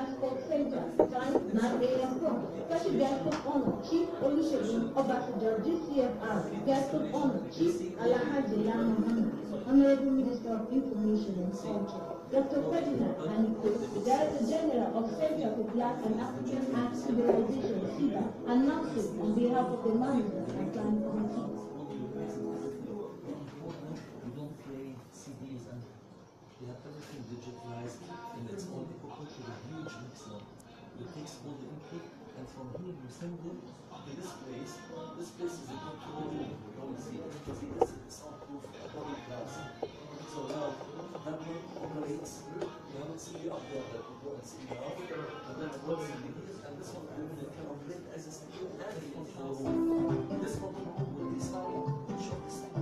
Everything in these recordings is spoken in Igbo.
jako sędzia stan Marię Kasi Gwiazdów Chief Olusegun Obasanjo DCFR Gwiazdów Honor Chief Alahaji Lama Honorable Minister of Information and Culture Dr. Ferdinand Aniko, Director General of Center for Black and African Arts Civilization, CIBA, announced on behalf of the management and planning committee. the all the input, and from here you send them to this place. This place is a control room. You don't see You see this is soundproof academic So now that one operates. You have a CD up there that you go and see now, and then it works in and this one will be kind of lit as a CD and control room. This one, will be sound,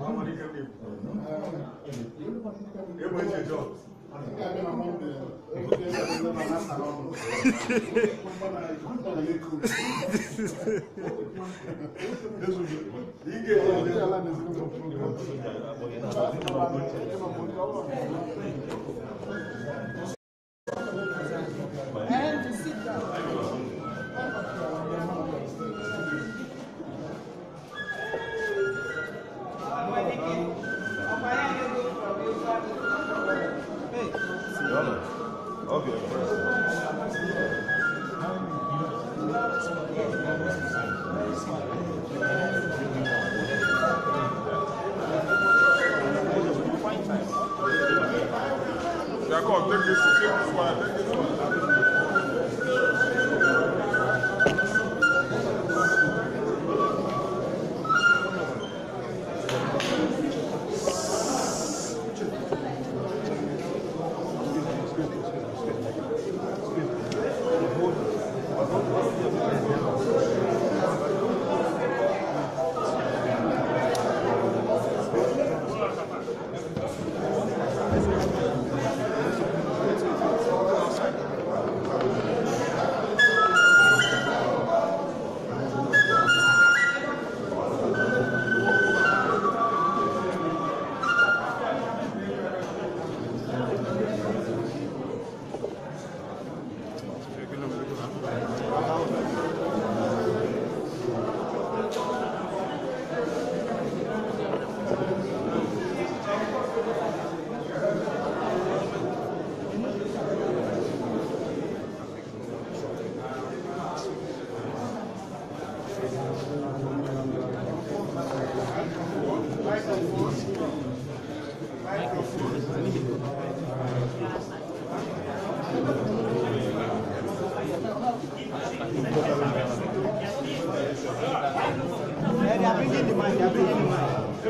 아무리 그렇게 이번에 저 이게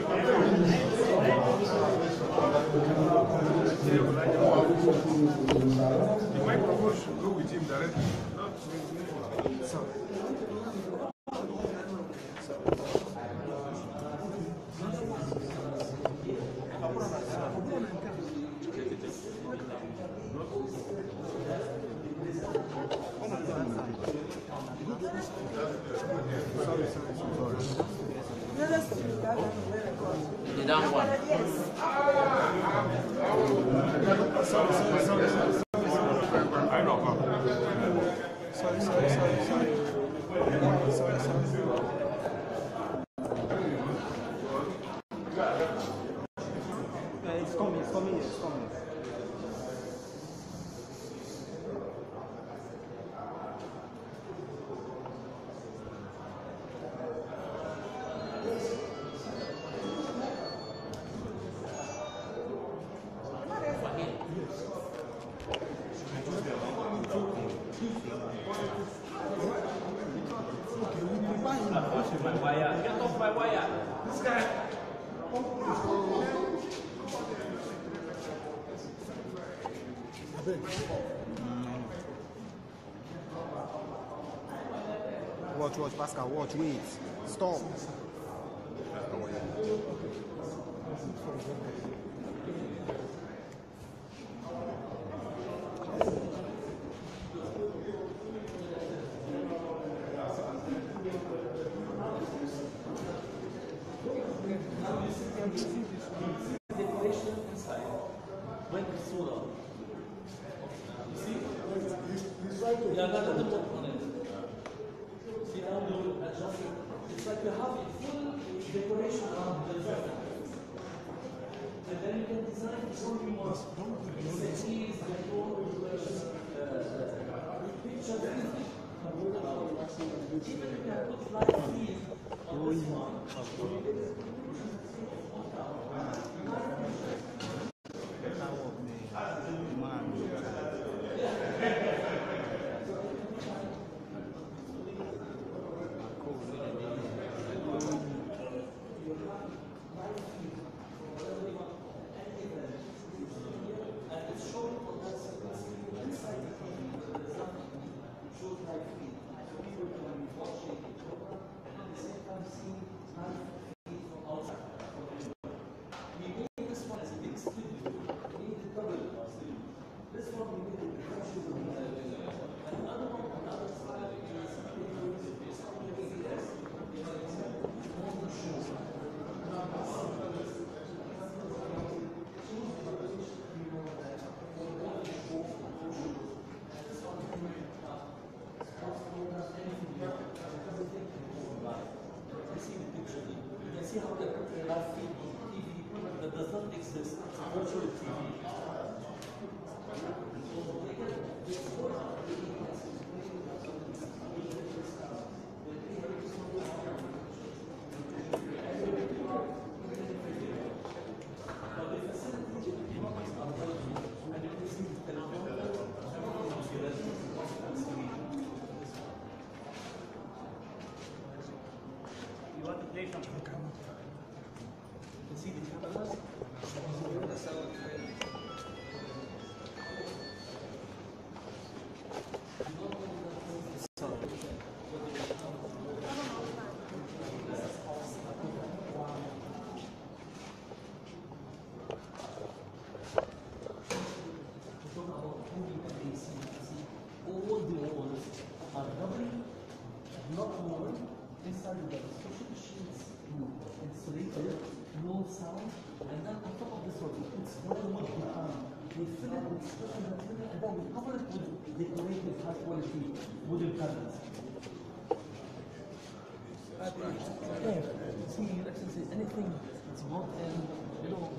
The microphone should go with Get off my wire. This guy. Watch, watch, Pascal, watch, wait. Stop. yeah, see, you anything that's not you know,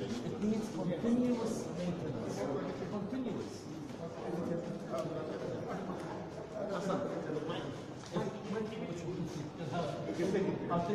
it needs continuous maintenance. Continuous. i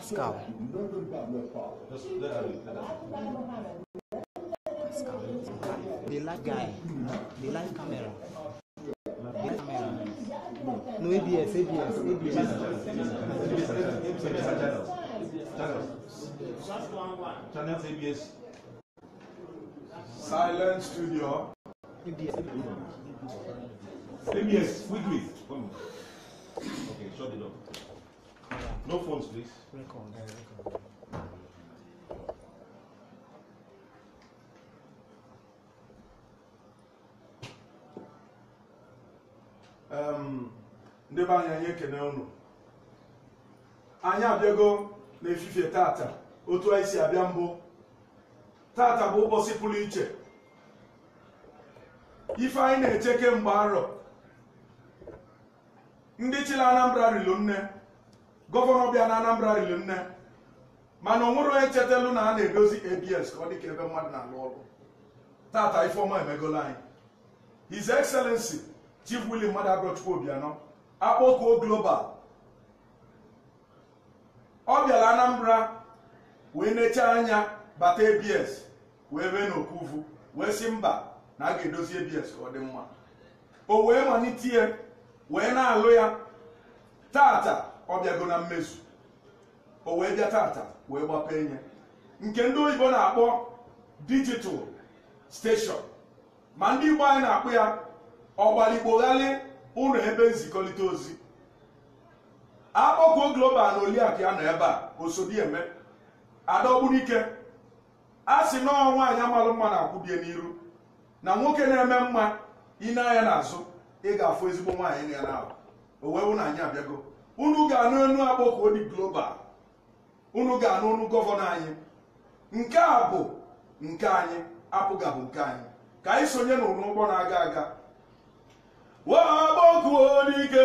Pascal. Pascal. They like guy. The light camera. They like camera. No ABS, ABS, ABS. Channels. Channels ABS. Silent studio. ABS. ABS, quickly. Okay, shut it off. No phones, please. Record. Uh, record. Um, anyị anyị ekene unu anyị abịago n'efifie tata otu anyị si abịa mbụ tata bụ ụbọchị pụrụ iche ife anyị na-eche kemgbe arọ ndị chịla Anambra rilu nne gọvanọ bịa na Anambra riri nne mana onwuru onye chetelu na a na-edozi abs ka ọ dị ka ebe mmadụ na-alụ ọrụ tata ifeọma emegolo anyị his excellency chief Willie Mmadụ Agrochukwu Obianọ akpọkuo global ọ bịara Anambra wee necha anya bata abs wee bee n'okuvu wee si mba na a ga-edozi abs ka ọ dị mma o wee malite wee na-alụ ya tata ọ bịago na mmezu o wee bịa tata wee gbapee enye nke ndị oyibo na-akpọ digital steshọn ma ndị igbo anyị na-akpụ ya ọgbalikpoghalị ụlọ ebe nzikọrịta ozi akpọkuo global na oliakụ ya nọ ebe a osodieme adaogbunike a sị nọọ nwaanyị amalụ mma na-akwụbie n'iru na nwoke na-eme mma ine anya n'azụ ị ga-afụ ezigbo nwaanyị na ya na ahụ o wee na anyị abịago unu ga-anụ enu agbọkọ odi global unu ga-anụ unu gọvanọ anyị nke a bụ nke anyị apụgabụ nke anyị ka anyị sonye n'ụlọ ụgbọ na-aga aga wagbọkụodike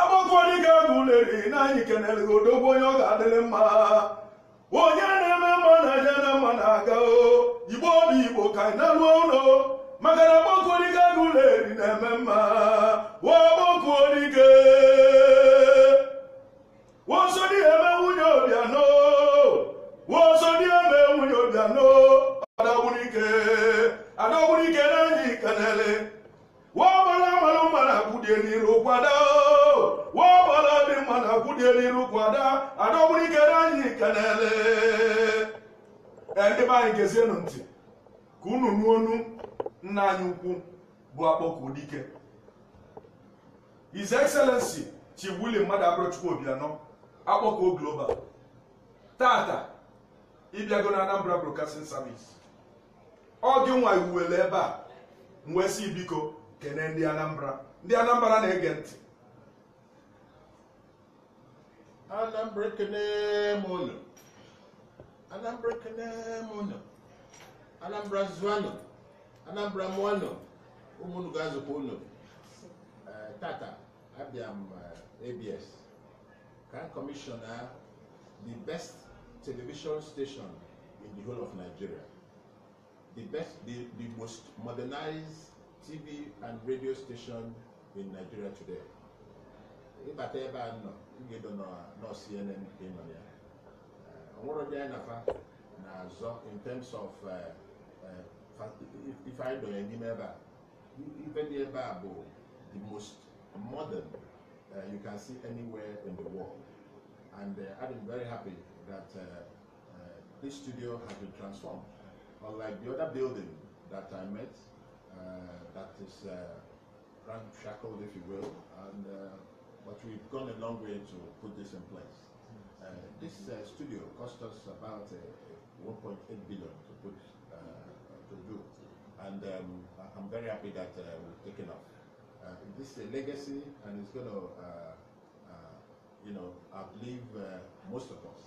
agbọkụodike bụleri na anyị kenelego odogbo onye ọ ga-adịrị mma onye na-eme mma na je na mma na-aga o igbo obi igbo ka anyị na-arụ ụlọ maka na ọgbakọolike agụ ụlọ eri na-eme mma ọgbakọolike wọsọ dị eme nwunye wọsọ dị eme nwunye na-enye ikenele wọgbara mmanụ mmanụ akwụdie n'iru kwada n'iru na ndị be anyị gezienụ ntị ka unu nuonu nna anyị ukwu bụ akpọku dike His Excellency Chibuli Mmadụ Abụrụchukwu Obianọ Akpọkọ global tata ịbịago na Anambra Broadcasting Service ọ gị nwa iwuwele ebe a wee ibiko biko ndị Anambra ndị Anambra na-ege ntị Anambra ekene m Anambra ekene m Anambra zụanụ Anambra mụ anọ ụmụnụ ga-azụkwa ụlọ uh, tata abịa uh, m ABS kan kọmishọna the best television station in the whole of Nigeria the best the, the most modernized TV and radio station in Nigeria today ịbata ebe a nọ ị edo nọ CNN ka ị nọ ya ọnwụrụ dị anyị nafa na-azọ in terms of uh, uh, if I don't n'ebe the most modern uh, you can see anywhere in the world and uh, I'm very happy that uh, uh this studio has been transformed unlike the other building that I met uh, that is uh, ramshackled if you will and but we've gone a long way to put this in place this studio cost us about 1.8 billion to put to do. And um, I'm very happy that uh, we've taken off. Uh, this is a legacy, and it's going to, uh, uh, you know, I uh, most of us.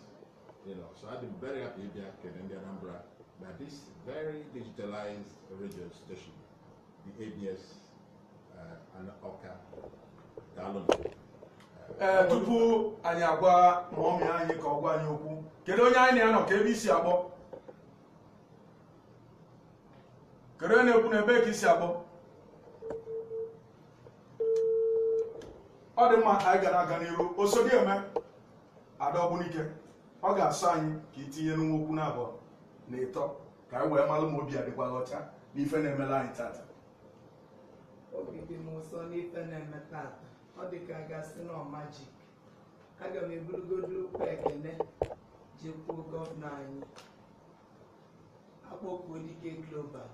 You know, so I've been very happy here in the Anambra that this very digitalized radio station, the ABS uh, and Oka, Dalon. ee eh, tupu anyị agwa ma ọmị anyị ka ọ gwa anyị okwu kedu onye anyị anọ ka ebe isi akpọ kere na-ekwu na ebe ka isi akpọ ọ dị mma ka anyị gara aga n'iru osodi eme ada n'ike ọ ga-asọ anyị ka itinye n'nwa okwu na abụọ na ịtọ ka anyị wee malụ ma obi adịkwala ọcha n'ife na-emela anyị tata obi dị m ụsọ n'ife na-eme tata ọ dị ka gasị na ọmaji aga m eburugodo ụkwa ekene jekwuo gọvanọ anyị akpọkuo dike global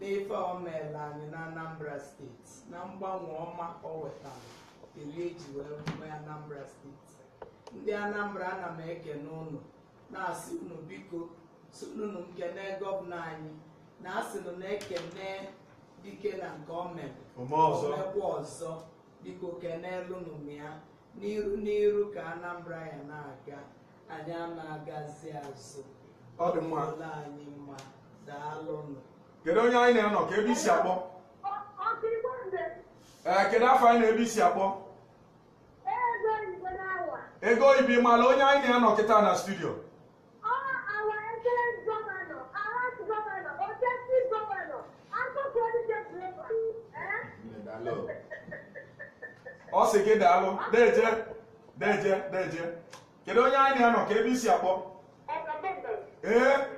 n'ife omela anyị na anambra steeti na mgbanwe ọma o wetara eri eji wee nwee anambra steeti ndị anambra ana m ekene ụnụ na-asị unu biko sununu nkene gọvanọ anyị na asịnụ na-ekene dike na nke o mere omekwa ọzọ biko kenelụnụ m ya n'iru n'iru ka anambra ya na-aga anyị ana na-agazi azụ ọ anyị mma daalụnụ kedu onye anyị na-enọ ka ebe isi akpọ ee eh, kedu afọ anyị na ebe isi akpọ ego oyibo ịmala onye anyị na-enọ kịta na studio ọ eh? sị gị daalụ deje deje deje kedu onye anyị na-enọ ka ebe isi akpọ ee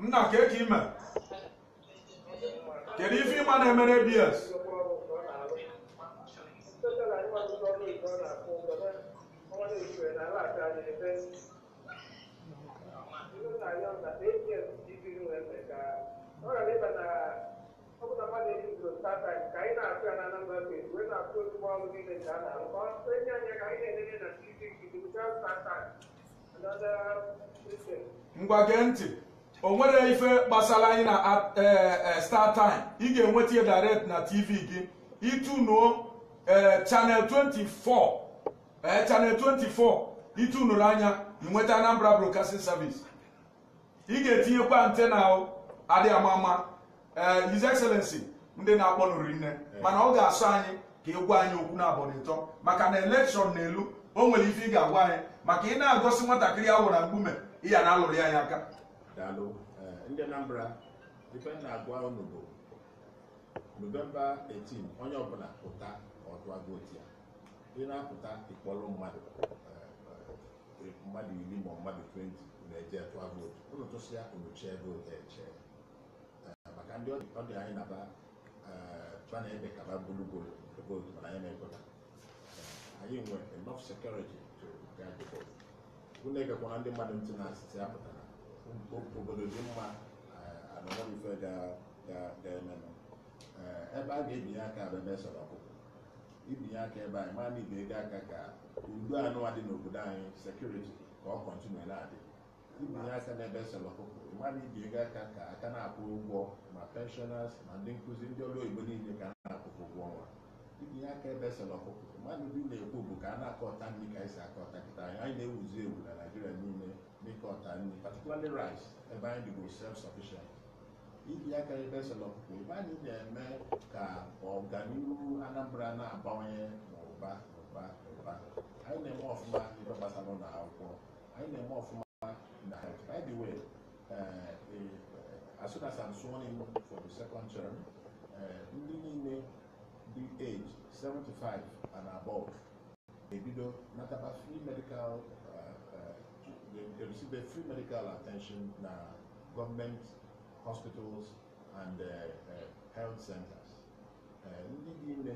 nna ka eke ime kedu ife ịma na-emere bs ngwa gee ntị o nwere ife gbasara anyị na eh, eh, star time ị ga-enweta ya direct na tv gị itunuo eh, channel 24 channel 24 ịtụnụrụ anya inweta Anambra Broadcasting Service ị ga-etinyekwa antena adịghị ama ama His Excellency ndị na-akpọ nụrụ nne mana ọ ga asụ anyị ka ị gwa anyị okwu na abọnịtọ maka na elekshọn na elu o nwere ife ị ga-agwa anyị maka ị na-agosi nwatakịrị ahụ na mgbume ị ya na alụrụ anyị aka daalụ eh, ndị Anambra ife na-agwa unu bụ novemba 18 onye ọbụla pụta ọtụa votu ya ị na-apụta ịkpọrọ mmadụ eh, eh, mmadụ iri ma mmadụ 20 na-eje tụa vootu unu tụsịa unu chee vootu eche maka ndị ọ dị anyị naba a na-eme kaba gburugburu vootu mana anyị na-ekweta anyị nwe enough sekuriti to guide vootu. vote unu egekwana ndị mmadụ ntị na-asịtị apụtara obodo dị mma anọrọ ife ga-eme ebe a ga-ebinye aka bụ ebe e sọrọ ọkụkọ ibinye aka ebe anyị maa na ibe ego aka ka udo anụwa dị n'obodo anyị sekuriti ka ọ kọntinu na-adị ibinye aka n'ebe e sọrọ ọkụkọ mmadụ ibi ego aka ka aka na-akwụ ụgwọ ma pensioners ma ndị nkụzi ndị ọrụ oyibo niile ka a na-akwụkwụ ụgwọ ọnwa ibinye aka ebe e sọrọ ọkụkọ mmadụ ndị na-ekwu bụ ka a na-akọta ndị ka anyị si akọta kịta anyị na-ewuzi ewu na naijiria niile because I mean, particularly rice, ẹ̀bá indigo self-sufficient. If Ibi akari bẹ sọlọ kò bá ní ẹ̀mẹ́ ka ọ̀gáníru Anambra náà bá wọn yẹn n'ụba n'ụba n'ụba. Anyị na-eme ọfụma ibe gbasara ụlọ akwụkwọ. Anyị na-eme ọfụma na health. By the way, uh, as soon as I'm sworn in for the second term, ndị niile dị age 75 and above Not about free medical they, they receive their free medical attention na government hospitals and uh, uh, health centers. Uh, ndị dị ime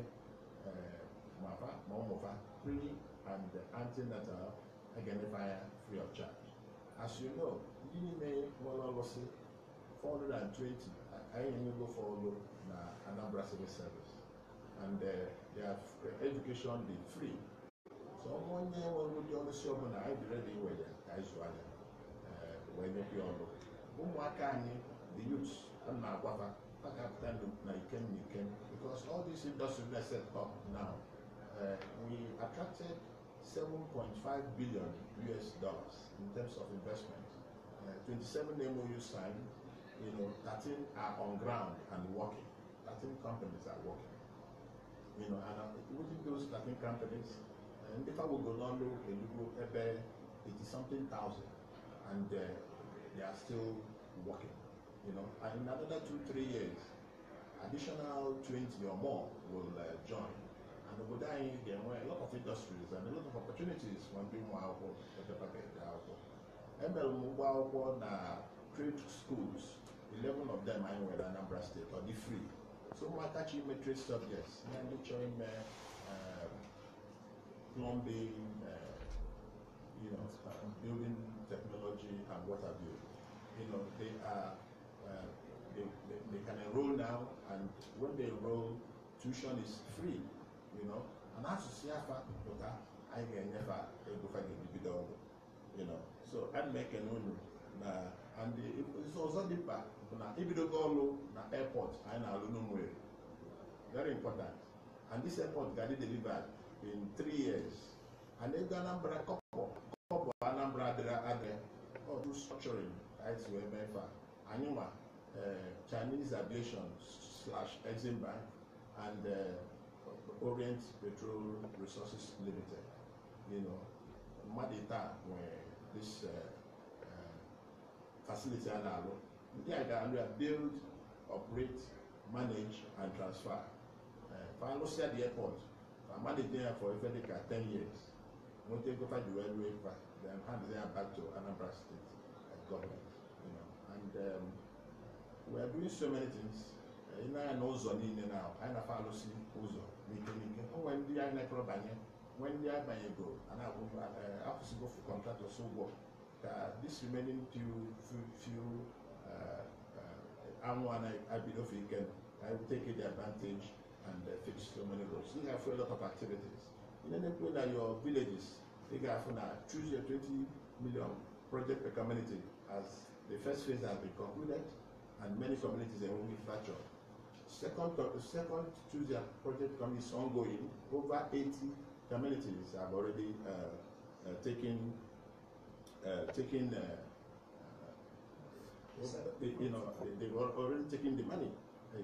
mafa uh, ma ụmụfa pre and antenatal aganefa ya free of charge. as you know ndị niile nwere ọlụsị 420 anyị enyego fọdụ na Anambra Civil Service and uh, their uh, education is free sɛ ɔmo nyɛ wɔn mu deɛ ɔno si ɔmo na abirɛ de wɔ yɛ ka ezu anya ɛɛ wɔnyɛ bi ɔno ɔmo aka anyi the youth ɛna agwaba aka apita na ikem na ikem because all these industries set up now uh, we attracted 7.5 billion us dollars in terms of investment uh, twenty mou signed you know 13 are on ground and working 13 companies are working you know and uh, within those 13 companies. If I will go ndị tagbogo n'ọnụ elugo ebe 80 something thousand and uh, they are still working you know and in another two three years additional 20 or more will uh, join and obodo anyị ga-enwe a lot of industries and a lot of opportunities for ndị ụmụ akwụkwọ epepaka ede akwụkwọ emere m ụgwọ akwụkwọ trade schools 11 of them anyị nwere Anambra State ọ dị free so my chi ime trade subjects and ndị chọrọ ime um, plumbing, uh, you know, building technology and what have you. You know, they are, uh, they, they, they can enroll now and when they enroll, tuition is free, you know. And as asụsụ afa pụta I can never egofa ga the video, you know so ana m ekene unu and ndị ọzọ dị mkpa bụ na ibidogo ọrụ na airport I know, very important and this airport ga-adị delivered in three years. And if the Anambra couple, couple number other other or do structuring, as we MEFA, Anuma, uh, Chinese Aviation slash Exim Bank, and uh, Orient Petrol Resources Limited. You know, Madita, where this uh, uh, facility and all, they are going to build, operate, manage, and transfer. Uh, Final the airport. I'm only there for Ifedeka ten years. Won't take over the railway part, then hand there back to Anambra State government, you know. And um, we are doing so many things. know, know, Ina ya na ụzọ niile na anyị na-afa alụsị ụzọ n'ike n'ike. O nwere ndị anyị na-ekọrọ banye, nwee ndị abanyego eh, go for contractors ụgwọ ka this remaining few few few one. Eh, eh, I na-abidofe ike na I will take the advantage and they uh, fix so many roads. These are for a lot of activities. In any place like your villages, take out now, choose your 20 million project per community as the first phase has been concluded and many communities are only fractured. Second, uh, second choose your project community is ongoing. Over 80 communities have already uh, uh, taken uh, taken uh, you know, they've already taken the money,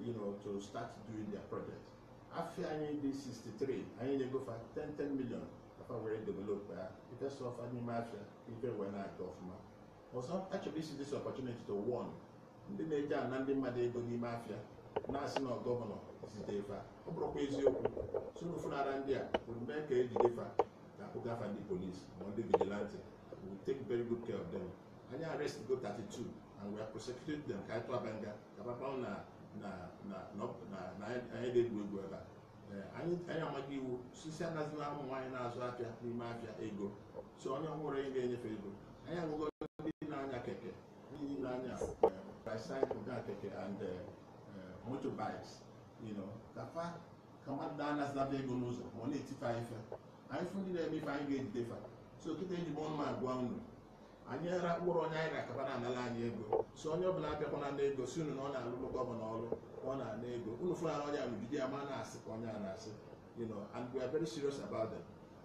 you know, to start doing their projects. afei anyị dị 63 anyị na-egofa 10 million afa were develop ya ife sọfa n'ime afịa ife wee na-aga ọfụma ọzọ achọrọ isi this opportunity to warn ndị na-eji ana ndị mmadụ ego n'ime afịa na-asị na gọvanọ zite fa ọ bụrụkwa eziokwu sụrụ funara ndị a bụ mee ka ejide fa na akpụgafa ndị polisi ma ndị vigilante we take very good care of them anyị arrest go 32 and we are prosecuting them ka anyị tụaba nga ka papa na na na na na na anyị dị egwu egwu ebe a anyị anyị amaghị iwu sisi anaghịzila ụmụ nwaanyị na-azụ afịa n'ime afịa ego so onye ọhụrụ anyị ga-enyefe ego anyị agụgo ndị na-anya keke ndị na-anya bicycle na keke and motorbikes you know kafa ka mmadụ na-anazilaba ego n'ụzọ ma ọ na-etife anyị fe anyị fụ ndị na-eme ife anyị ga-ejide fa so kịta eji m ọnụ agwa unu anyị ara mkpụrụ onye anyị na-akaba na anyị ego si onye ọbụla abịakwana na ego si unu na ọ na-alụrụ gọvanọ ọrụ ọ na-ana ego unu fụlana onye amigide ya na-asị ka onye a na-asị you and we are very serious about them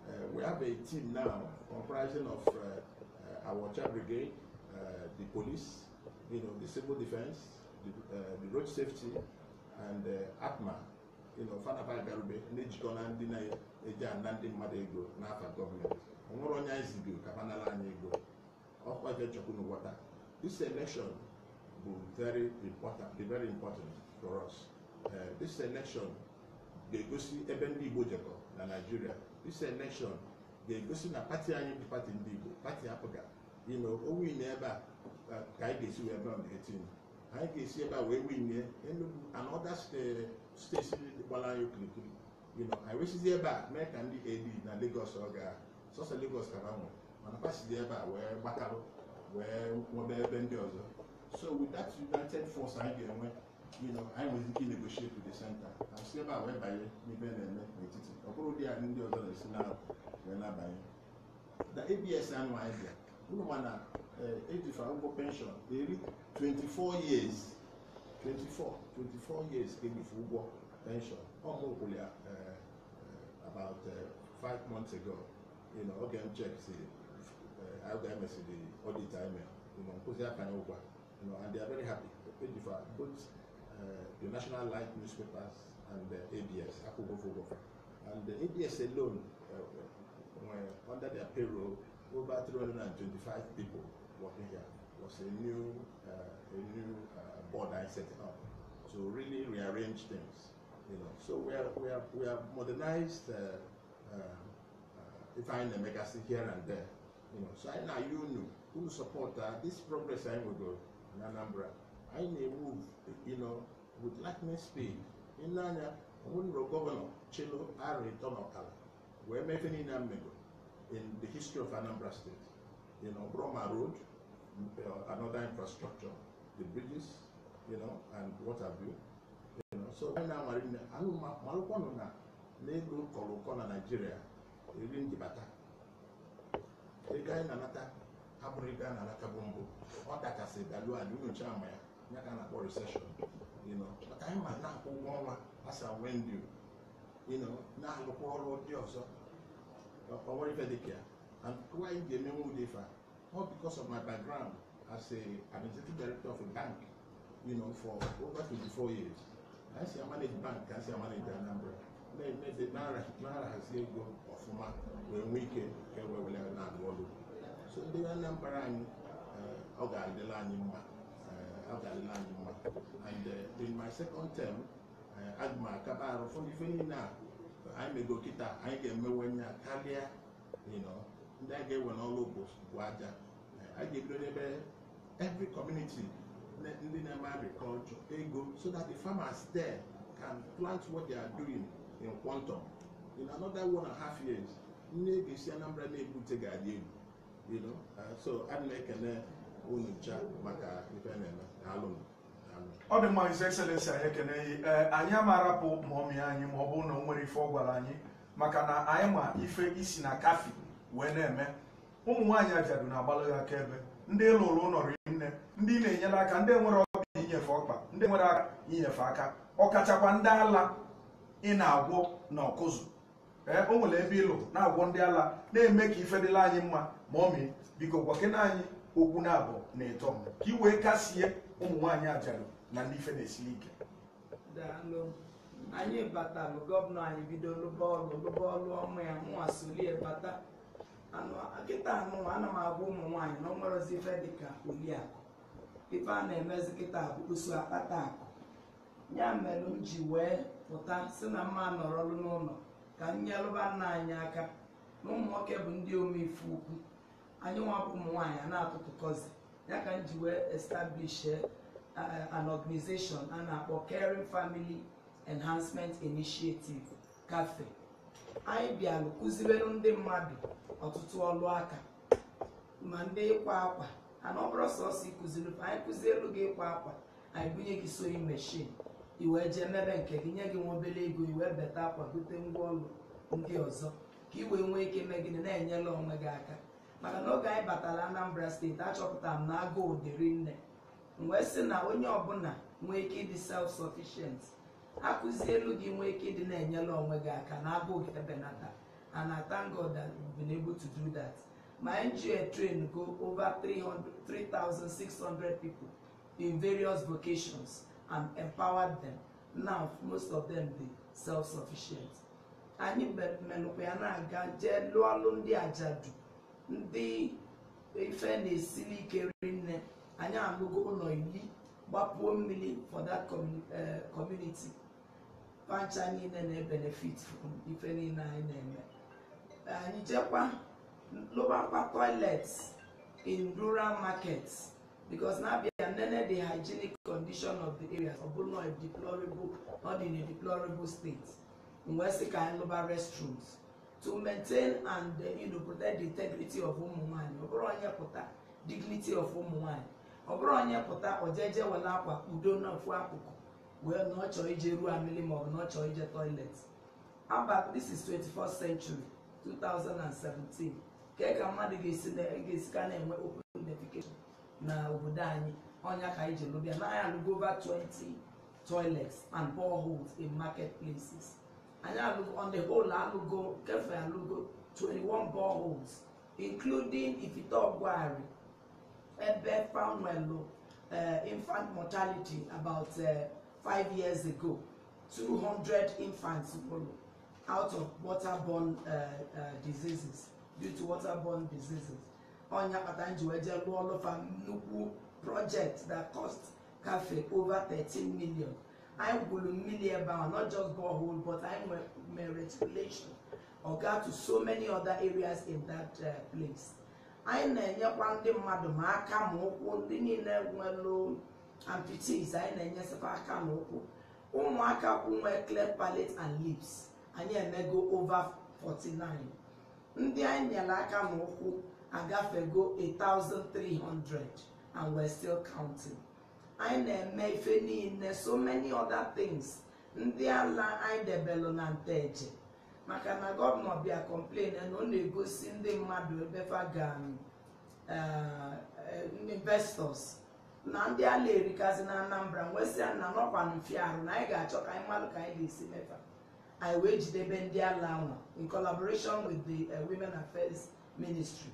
uh, we have a team now comprising of uh, uh, our child brigade uh, the police you know the civil defense the, uh, road safety and uh, na-ejikọ ego n'afa nwere onye anyị ego ọkwa ga-echekwu n'ụwa taa this election bụ very important dị very important for us eh, this election ga-egosi ebe ndị Igbo jekọ na Nigeria this election ga-egosi na pati anyị bụ pati ndị Igbo pati apụga ime owin ebe a eh, ka anyị ga-esi wee baa etinye anyị ga-esi ebe a wee winie Enugu and other steeti eh, gbara anyị okirikiri anyị wesizi ebe a mee ka ndị AD na Lagos ọ ga sọsọ Lagos ka ha nwere mana ha dị ebe a wee gbakarụ wee nwebe ebe ndị ọzọ so with that united force anyị ga-enwe you know anyị nwere ike inegotiate with the center na si ebe a wee banye n'ibe na-eme n'etiti ọ bụrụ dị anyị ndị ọzọ na-esi na wee na-abanye na abs anụ anyị bịa unu ma ejifa eh, e ụgwọ penshọn eri 24 years 24 24 years ka e ejifa ụgwọ penshọn ọ mụkwụrụ ya eh, eh, about uh, five months ago you know, again, check, see, uh, IMS, the audit IMF, you know, you know, and they are very happy. Edifa, both uh, the National Light newspapers and the ABS, Akugofogofo. And the ABS alone, uh, were under their payroll, over 325 people working here. was a new, uh, a new uh, board I set up to really rearrange things. You know, so we are we are we have modernized uh, uh, uh, if the legacy here and there. You know, so I now you know who support uh, this progress I will go uh, in Anambra. I may move, you know, with lightning speed. In Nanya, Munro Governor Chilo Ari Tonokala, where Mefini Namego in the history of Anambra State. You know, Broma Road, uh, another infrastructure, the bridges, you know, and what have you. You know, so I now, Marina, Alu Malukono na, Negro Koloko na Nigeria, Irin Jibata. ego anyị na-anata abụrụ ego a na-anata bụ mbụ ọ dakasị balu anyị nyocha ama ya ya ka a na-akpọ recession maka anyị ma na-akwụ ụgwọ ọnwa asa wendu na-alụkwa ọrụ ndị ọzọ onwere ife dịka ya and ga-emenwe ụdị ife ọ because of my as a administrative director of a bank you know, for over 24 years si manage bank manage Anambra na-emezi na-ahazi ego ọfụma wee nwee ike ka ewewere na-arụ ọrụ so ndị Anambra anyị eh, ọ ga-adịla anyị mma eh, ga-adịla anyị mma and eh, in my second term aga m akaba arụ fọdụ ife niile a anyị mego kịta anyị ga-emewenye ya karịa ndị a ga-ewe n'ọrụ bụ aja a ga-ebido n'ebe every community ndị na-eme agriculture ego so that the farmers there can plant what they are doing in quantum in another one and a half years nne ga-esi anambra na-ebute ga-adị egwu you know uh, so adị na-ekene unu maka ife na-eme alụ m ọ dị mma His Excellency anyị ekeneghị ee anyị amarapụ maọmị anyị ma ọ bụ na o nwere ife ọ gwara anyị maka na anyị ma ife isi na kafi wee na-eme eh, ụmụ nwaanyị ajadu na-agbalụ ya akaebe ndị lụrụ ụlọrụ nne ndị na-enyere aka ndị nwere ọkpa inyefe ọkpa ndị nwere aka inyefe aka ọ kachakwa ndị ala ị na-agwọ na ọkụzụ eh, o nwere ebe ịlụ na-agwọ ndị ala na-eme ka ife dịla anyị mma ma ọ mee biko gwakena anyị okwu na abụ na ịtọ ka iwee wee kasie ụmụ nwaanyị ajarụ na ndị ife na-esiri ike anyị batalụ gọvanọ anyị bido lụba ọlụ lụba ọma ya nwa solie bata kịta anụwa ana m agwa ụmụ nwaanyị na ọnwerozi ife dịka oliakụ ife a na-emezi kịta bụ usu akpata akụ ya mere m ji wee pụta si na mma nọrọlụ n'ụlọ ka m nyelụba nna anyị aka na ụmụnwoke bụ ndị omeife ukwu anyị nwabụ ụmụ nwaanyị a na kọzi ya ka m ji wee establish eh, eh, an organization a na-akpọ Caring Family Enhancement Initiative cafe anyị bịalụ kụziberụ ndị mmadụ ọtụtụ ọlụ aka ma ndị ịkwa akwa ana ọ bụrụ sọsọ ịkụziri anyị kụzielu gị ịkwa akwa anyị bunye gị sewing machine i wee jee mebe nke gị nye gị nwa obere ego iwee beta akwa gote ngwa ndị ọzọ ka i wee nwee ike mee gịnị na-enyela onwe gị aka maka na oge anyị batara Anambra steeti achọpụtara m na agụụ dịrị nne wee sị na onye ọbụla nwee ike ịdị self sufficient akụzi elu gị nwee ike ịdị na-enyela onwe gị aka na agụụ gị ebenata and I thank God that we've been able to do that my NGO trained go over 3,600 people in various vocations and empower them now most of them be self-sufficient anyị menụkwa ya na-aga jee lụọ ndị ajadu ndị ife na-esili ike nne anyị alụgo ụlọ iri gbapuo mmiri for that eh, community pancha niile na-ebenefit from ife niile anyị na-eme anyị jekwa lụbakwa toilets in rural markets because n'abịa nene the hygienic condition of the area ọ bụrụ na deplorable not in a deplorable state wee sị ka restrooms to maintain and uh, you know, protect the integrity of ụmụ ọ bụrụ onye pụta dignity of ụmụ nwanyị ọ bụrụ onye pụta ojeje wele akwa udo n'ofu akụkụ wee na ọ chọọ ije ruo amili maọbụ na ọ chọọ ije toilet aba this is 21st century 2017 ka ka mmadụ ga-esi ka na-enwe open defecation na obodo anyị ọnya ka anyị ji lụbịa na anyị alụgo over 20 toilets and boreholes in market places anyị alụgo on the whole alụgo kefe alụgo 21 boreholes including ifitọgwari ebe fanwelụ uh, eh, infant mortality about eh, five years ago 200 infants nwụrụ out of waterborne eh, diseases due to waterborne diseases ọnya kpata nji wee jee lụọ ọlụfa nnukwu project that cost cafe over 13 million anyị gwuru mmiri ebe ahụ not just borehole but anyị mere reticulation oga to so many other areas in that uh, place anyị na-enyekwa ndị mmadụ ma aka ma ụkwụ ndị niile nwelụ amputees anyị na-enyesịkwa aka na ụkwụ ụmụaka kwụ nwee clear palate and lips anyị emego over 49 ndị anyị nyere aka na ụkwụ a thousand three hundred, and we're still counting anyị na-eme ife niile so many other things ndị ala anyị debelụ na nteje maka na gọvanọ bịa complain na ọ na-egosi ndị mmadụ ebe fagan eh, eh, investors na ndị ala erikazi na anambra nwesịa nna n'ọkwa mfiarụ na anyị ga-achọ ka anyị mmadụ ka anyị ga-esi mefa anyị wee jidebe ndị ala nwa in collaboration with the uh, women affairs ministry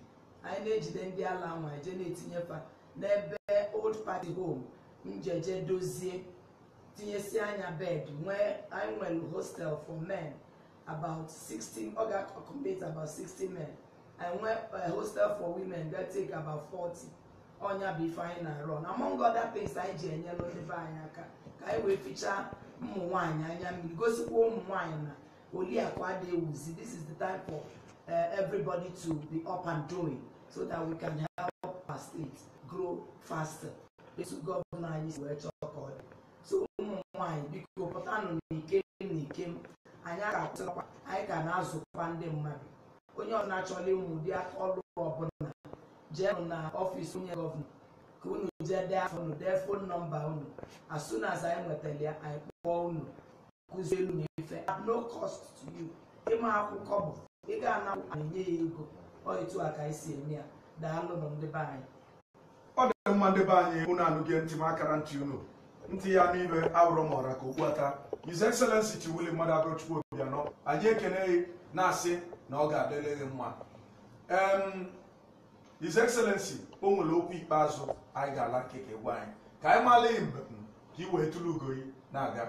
anyị na-ejide ndị ala nwa eje na-etinyefa n'ebe old party home njeje dozie tinyesi anya bed nwee anyị nwere hostel for men about 16 ọ ga-accommodate about 60 men anyị eh, hostel for women ga take about 40 ọnya bụ ife anyị na-arụ na among other things anyị ji enyelu ebe anyị aka ka anyị wee fichaa ụmụ nwanyị anya mmiri gosikwa ụmụ nwanyị na oliakwa adịghị ewuzi this is the time for eh, everybody to be up and doing. so that we can help our state grow faster. Etu gọvanọ anyị si wee chọọ ka So ụmụ nwaanyị biko pụtanụ n'ike n'ike m anyị ga-atụkwa anyị ga na-azụkwa ndị mmadụ onye na chọrọ ịmụ ụdị aka ọrụ ọbụla jeenụ na ọfịs onye gọvanọ ka unu jee dee afọ unu as soon as anyị nwetara ya anyị kpọọ unu elu at no cost to you ịma akwụkwọ bụ ịga ga-anakwụ enye ego ọ etu a ka anyị si eme ya daalụnụ ndị be anyị ọ dị mma ndị be anyị ụnụ anụghị ntị m akara ntị unu ntị ya n'ibe awụrụ m ọra ka okpuata His Excellency Chiwuli Mmadụ Agochukwu Obianọ anyị ekeneghị na-asị na ọ ga-adịrị gị mma His Excellency o nwere okwu ikpeazụ anyị ga-ala nkeke gwa anyị ka anyị maala mgbe ka ị wee tụrụ ugoyi na-aga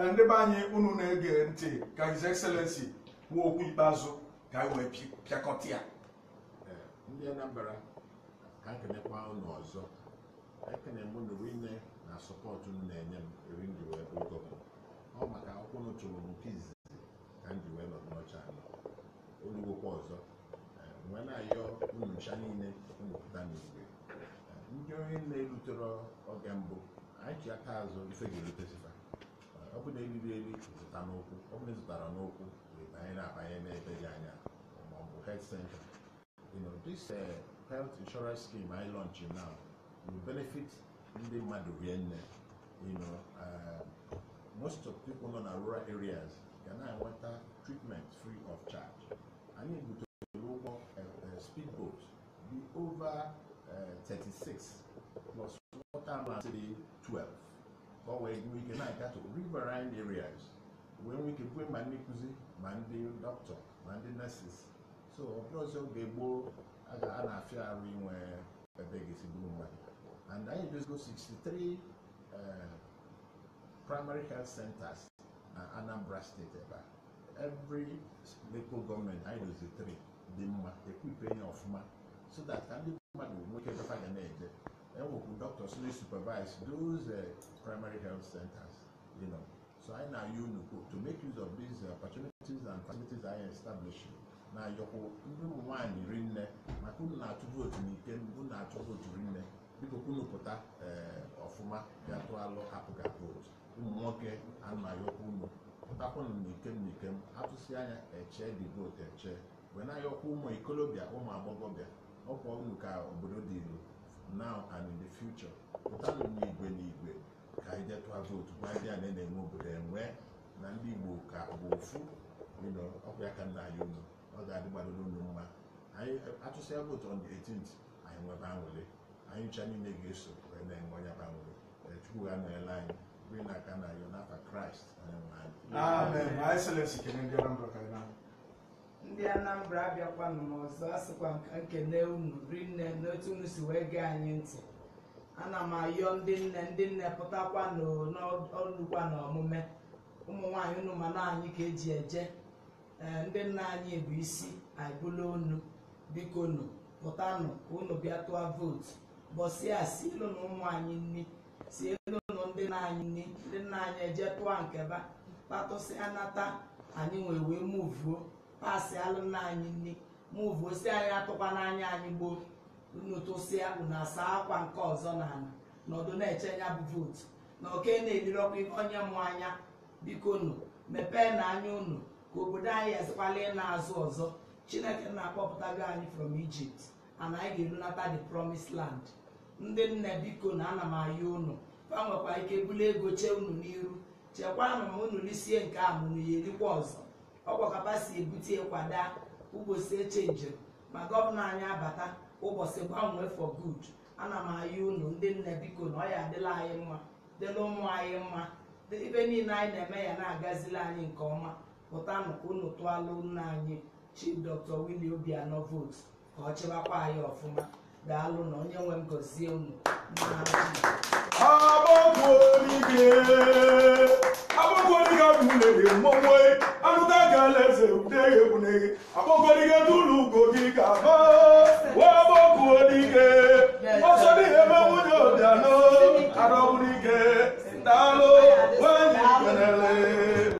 Eh, ndị be anyị unu na-ege ntị ka His Excellency kwuo okwu ikpeazụ ka anyị wee pịakọta ya eh, ndị Anambra ka ekenekwa unu ọzọ ekene m unu niile na sọpọtụ unu na-enye m eri m ji wee ogo ọ maka akwụkwọ unu tụrụ m nke izizi ka m ji wee nọ n'ọcha olugokwa ọzọ nwee eh, na-ayọ unu ncha niile unu pụta n'igwe ndị onye na-erutere oge mbụ anyị chi aka azụ ife ga-erutesifa ọ bụ na eriri eri zụta n'okwu ọ bụ na ịzụtara n'okwu wee banye na-abanye n'ebe dị anya maọbụ health center you know this uh, health insurance scheme anyị launch now will benefit ndị mmadụ rie nne you know uh, most of people nọ na rural areas ga na-enweta treatment free of charge anyị butere ụgbọ uh, uh, speedboat dị over uh, 36 plus water mass 12 ka ọ wee nwee ike na-agatụ riverine areas wee nwee ike kwe ma ndị nkụzi ma ndị dọkịta ma ndị nurses so ọbụla ọzọ oge gboo a na-afịa arụ inwe ebe ga-esi bụrụ mmadụ and anyị dozigo 63 primary health centers na uh, anambra steeti ebe every local government, anyị dozi 3 dị mma ekwipere ya ọfụma so that ka ndị mmadụ nwee ike dọfa ga na-eje ewepụ um doctors na supervise those uh, primary health centers you know so anyị na-ayọ unu to make use of these eh, opportunities and facilities anyị establishing na ayọkwụ ndị ụmụ nwaanyị rinne maka unu na-atụ vootu n'ike unu na-atụ vootu rinne biko unu pụta ọfụma eh, bịa tụọ alụ hapụga vootu ụmụ nwoke anayọkwa unu pụtakwanụ n'ikem n'ikem atụsị anya eche dị vootu eche wee na-ayọkwa ụmụ ikolobịa ụmụ agbọghọbịa ọkwa unu ka obodo dị ilu now and in the future igwe n'igwe n'igwe ka anyị detụa vootu gwa ndị a na na-enwe obodo enwe na ndị Igbo ka bụ ofu ọkụ ya ka nna anyị unu ọ ga-adị gbadoro mma anyị atụsịa vootu on the 18th anyị nwebe anwụle anyị ncha niile ga-eso wee na-enwe onye banwụle chukwu ga nọnyere anyị biri na aka na yo n'afa Kraịst onye nwe anyị ndị Anambra abịakwanụ n'ọzọ asịkwa nkene unu rinne n'otu unu si wee gee anyị ntị ana m ayọ ndị nne ndị nne pụtakwa n'ọlụkwa na ọmụme ụmụ nwaanyị unu ma na anyị ka eji eje ndị nna anyị bụ isi aịbụla onu biko nụ pụtanụ ka unu bịa tụọ vootu bọsịa si na ụmụ anyị nni sielu na ndị nna anyị nni ndị nna anyị eje tụọ nkeba kpatụsịa nata anyị nwee wee muvuo pasi alụmna anyị nne mụvụ osi anyị atụkwa n'anya anyị gboo si abụ na asa akwa nke ọzọ na ala nọdụ na-eche ya bụ vootu na oke na-elirọkwa ihe onye mụ anya biko nụ mepee na anya unu ka obodo anyị ezikwala ịna azụ ọzọ chineke na-akpọpụtago anyị from Egypt ana anyị ga-erunata the promised land ndị nne biko na ana m ayị unu fa nwekwa ike buli ego chee unu n'iru chekwaa na unu risie nke a mụnụ ya erikwa ọzọ ọgbakapa si ebute kwada ụbọchị eche njem ma gọvanọ anyị abata ụbọchị gbanwee for good ana m ayị unu ndị nne biko na ọ ya adịla anyị mma dịla ụmụ anyị mma ibe niile anyị na-eme ya na-agazila anyị nke ọma pụta ka unu tụọla nna anyị chi dr willie anọ votu ka ọ chịwakwa anyị ọfụma daalụ na onye nwe m gọzie unu agbagwo onige agbagwo onige arụta ka alaeze udeghe egwuneghe akpọkọdike tụlụ ugo gị ka ba wee gbọkwuo n'ike ọsọ n'ihe ebe nwunye ụdịanụ arọbụrụ ike daalụ nwanyị kwenele